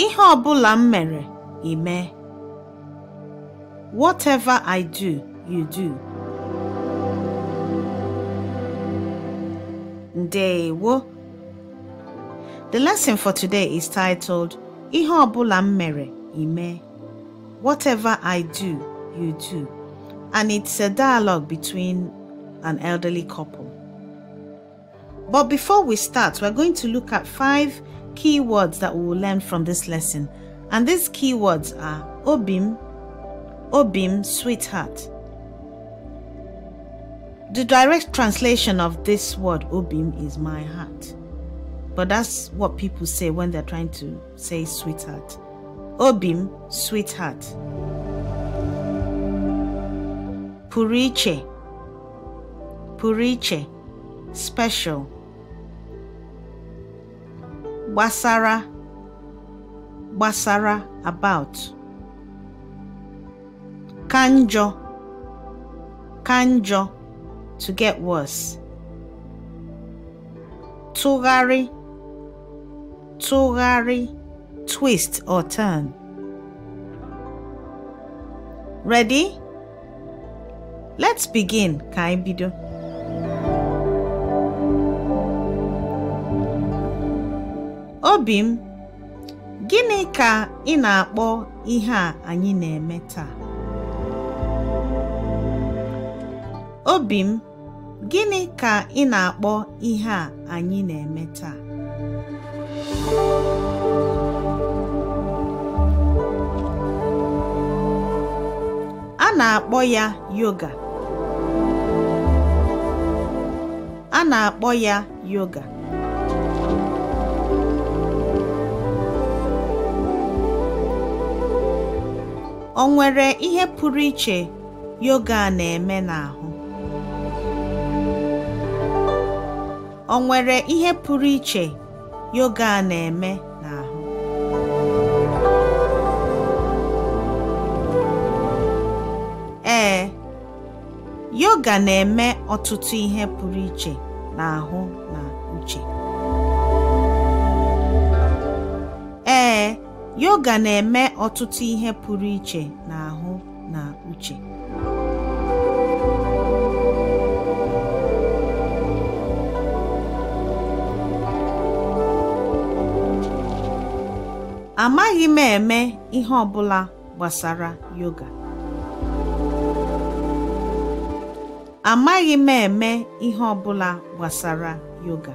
Ihe ọ bụla m mere, Whatever I do, you do. Ndewo. The lesson for today is titled Ihe ọ bụla m mere, Whatever I do, you do. And it's a dialogue between an elderly couple. But before we start, we're going to look at five key words that we will learn from this lesson. And these key words are Obim, Obim, sweetheart. The direct translation of this word Obim is my heart. But that's what people say when they're trying to say sweetheart. Obim, sweetheart. Puriche. Puriche. Special. gbasara gbasara about ka njọ ka njọ to get worse tụgharị tụgharị twist or turn ready let's begin ka anyị bido obi m gịnị ka ị na-akpọ ihe a anyị na-eme taa a na-eme a na-akpọ ya yoga o nwere ihe pụrụ iche yoga na-eme n'ahụ yoga na-eme n'ahụ? Ee, yoga na-eme ọtụtụ ihe pụrụ iche n'ahụ na uche. yoga na-eme ọtụtụ ihe pụrụ iche n'ahụ na uche amaghị m eme ihe ọ gbasara yoga amaghị m eme ihe ọ gbasara yoga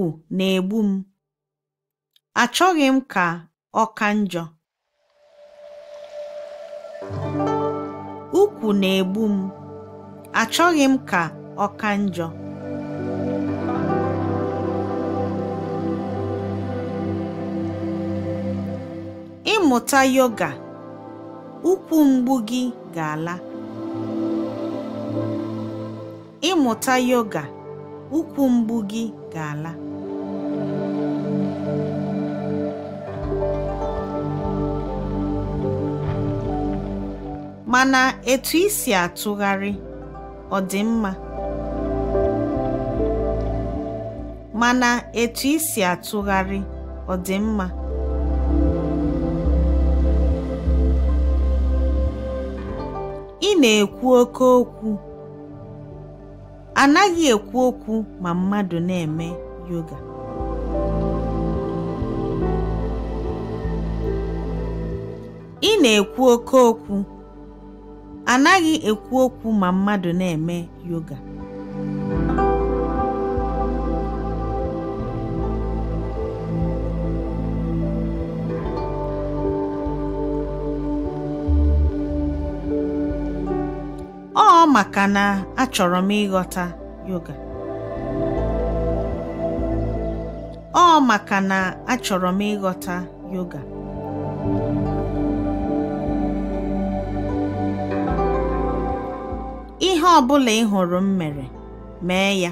m, achọghị m ka ọ ka njọ. Ukwu na egbu m, achọghị m ka ọ ka njọ. Ịmụta yoga, ụkwụ mgbu gị ga-ala. gị ga-ala. mana etu isi atụgharị ọ dị mma mana etu isi atụgharị ọ dị mma ị na-ekwu oke okwu anaghị ekwu okwu ma mmadụ na-eme yoga ị na-ekwu oke okwu anaghị ekwu okwu ma mmadụ na-eme yoga ọ maka na achọrọ m ịghọta yoga ọ maka na achọrọ m ịghọta yoga ihe ọ bụla ị hụrụ m mere mee ya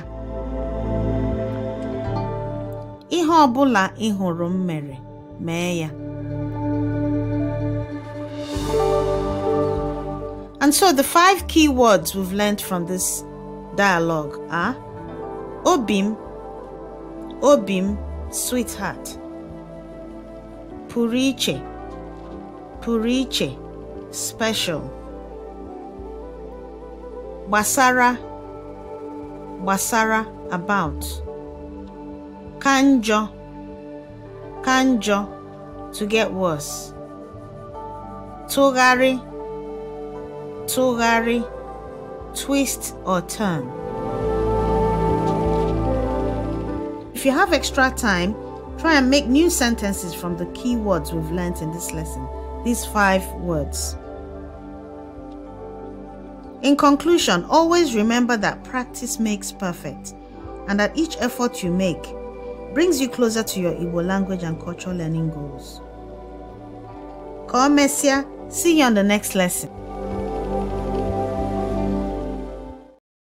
ihe ọ bụla ị hụrụ m mere mee ya And so the five key words we've learned from this dialogue are Obim, Obim, sweetheart, Puriche, Puriche, special gbasara gbasara about ka njọ ka njọ to get worse tụgharị tụgharị twist or turn if you have extra time try and make new sentences from the key words we've learned in this lesson these five words in conclusion, always remember that practice makes perfect and that each effort you make brings you closer to your Igbo language and cultural learning goals. Komesia, see you on the next lesson.